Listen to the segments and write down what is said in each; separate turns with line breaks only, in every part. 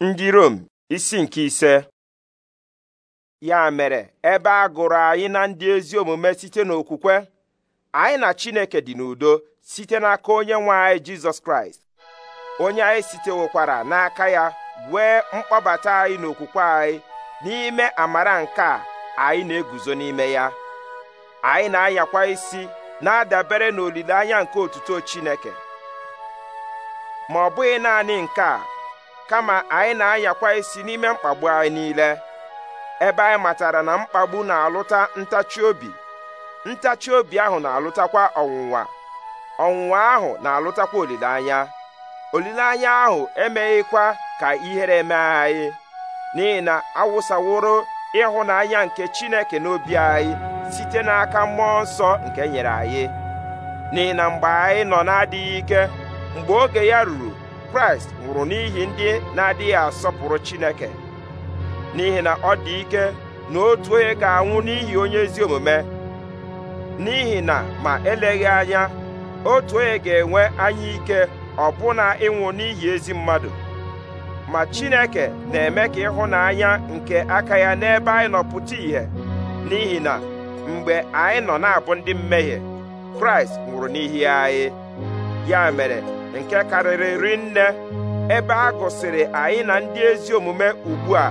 ndị Rom isi nke ise ya mere ebe a gụrụ anyị na ndị ezi omume site n'okwukwe anyị na Chineke dị n'udo site n'aka onye nwe anyị Jizọs Kraịst onye anyị site sitewokwara n'aka ya wee mkpọbata anyị n'okwukwe anyị n'ime amara nke a anyị na-eguzo n'ime ya anyị na-anyakwa isi na-adabere n'olileanya nke otuto Chineke ma ọ bụghị naanị nke a kama anyị na-ayakwa isi n'ime mkpagbu anyị niile ebe anyị matara na mkpagbu na-alụta ntachi obi ntachi obi ahụ na-alụtakwa ọnwụnwa ọnwụnwa ahụ na-alụtakwa olileanya olileanya ahụ emeghịkwa ka ihere mee anyị n'ihi na awụsaworo ịhụnanya nke Chineke n'obi anyị site n'aka mmụọ nsọ nke nyere anyị n'ihi na mgbe anyị nọ na-adịghị ike mgbe oge ya ruru kraịst nwụrụ n'ihi ndị na-adịghị asọpụrụ chineke n'ihi na ọ dị ike na otu onye ga-anwụ n'ihi onye ezi omume n'ihi na ma eleghị anya otu onye ga-enwe anya ike ọbụna ịnwụ n'ihi ezi mmadụ ma chineke na-eme ka ịhụnanya nke aka ya n'ebe anyị nọ pụta ìhè n'ihi na mgbe anyị nọ na-abụ ndị mmehie kraịst nwụrụ n'ihi anyị ya mere nke karịrị rinne ebe a gụsịrị anyị na ndị ezi omume ugbu a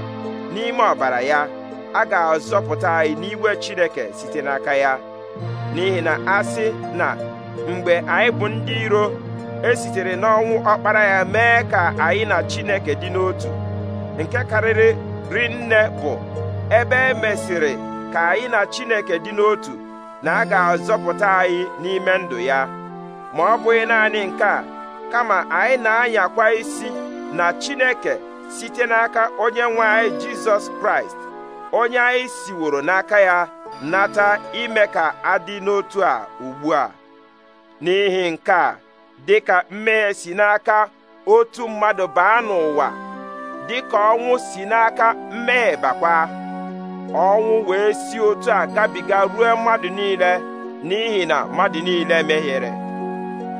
n'ime ọbara ya a ga-azọpụta anyị n'iwe Chineke site n'aka ya n'ihi na a sị na mgbe anyị bụ ndị iro e sitere n'ọnwụ ọkpara ya mee ka anyị na Chineke dị n'otu nke karịrị rinne bụ ebe e mesịrị ka anyị na Chineke dị n'otu na a ga-azọpụta anyị n'ime ndụ ya ma ọ bụghị naanị nke a kama anyị na-anyakwa isi na Chineke site n'aka onye nwe anyị Jizọs Kraịst onye anyị siworo n'aka ya nata ime ka adị n'otu a ugbu a n'ihi nke a dị ka mmehie si n'aka otu mmadụ baa n'ụwa dị ka ọnwụ si n'aka mmehie bakwa ọnwụ wee si otu a gabiga ruo mmadụ niile n'ihi na mmadụ niile mehiere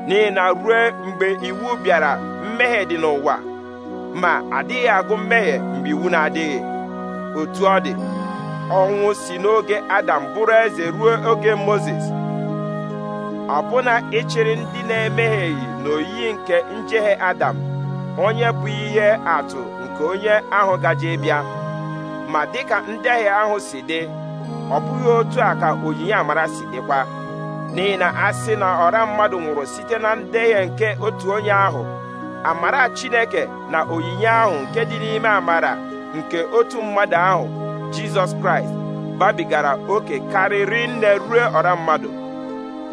n'ihi na ruo mgbe iwu bịara mmehie dị n'ụwa ma adịghị agụ mmehie mgbe iwu na-adịghị otu ọ dị ọnwụ si n'oge adam bụrụ eze ruo oge moses ọbụna ịchịrị ndị na-emehieghị n'oyiyi nke njehie adam onye bụ ihe atụ nke onye ahụ gaje bịa ma dịka ndehie ahụ si dị ọ bụghị otu a ka onyinye amara si dịkwa n'ihi na a sị na ọra mmadụ nwụrụ site na ndeghe nke otu onye ahụ amara chineke na onyinye ahụ nke dị n'ime amara nke otu mmadụ ahụ jizọs kraịst babigara oke karịrị nne ruo ọra mmadụ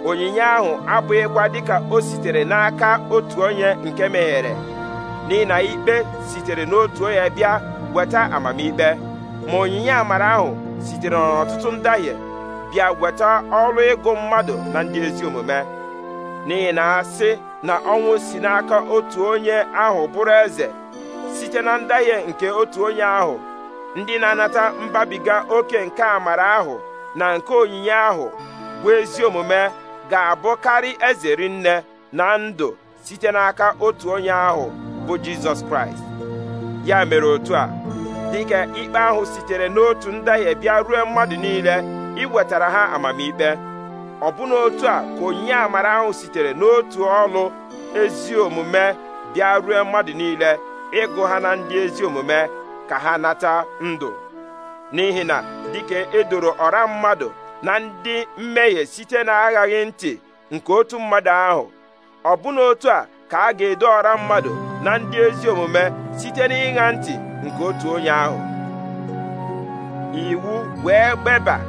onyinye ahụ abụghịkwa dịka o sitere n'aka otu onye nke meghere n'ihi na ikpe sitere n'otu onye bịa weta amamikpe ma onyinye amara ahụ sitere n'ọtụtụ ndahie bịa weta ọrụ ịgụ mmadụ na ndị ezi omume n'ihi na asị na ọnwụ si n'aka otu onye ahụ bụrụ eze site na ndahie nke otu onye ahụ ndị na-anata mbabiga oke nke amara ahụ na nke onyinye ahụ bụ ezi omume ga-abụkarị eze rinne na ndụ site n'aka otu onye ahụ bụ Jizọs Kraịst ya mere otu a dịka ikpe ahụ sitere n'otu ndahie bịa ruo mmadụ niile iwetara ha amamikpe ọbụna otu a ka onye amara ahụ sitere n'otu ọlụ ezi omume bịa rue mmadụ niile ịgụ ha na ndị ezi omume ka ha nata ndụ n'ihi na dịka edoro ọra mmadụ na ndị mmehie site na aghaghị ntị nke otu mmadụ ahụ ọbụna otu a ka a ga-edo ọra mmadụ na ndị ezi omume site n'ịṅa ntị nke otu onye ahụ iwu wee gbeba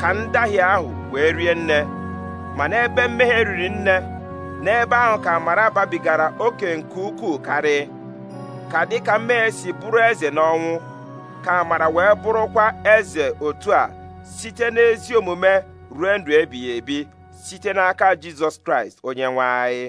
ka ndahie ahụ wee rie nne ma n'ebe mmehie riri nne n'ebe ahụ ka amara babigara oke nke ukwuu karị ka dịka mmehie si bụrụ eze n'ọnwụ ka amara wee bụrụkwa eze otu a site n'ezi omume ruo ndụ ebighị ebi site n'aka jizọs kraịst onye nwe anyị